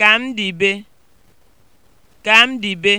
Ka m dị be. Ka m dị be.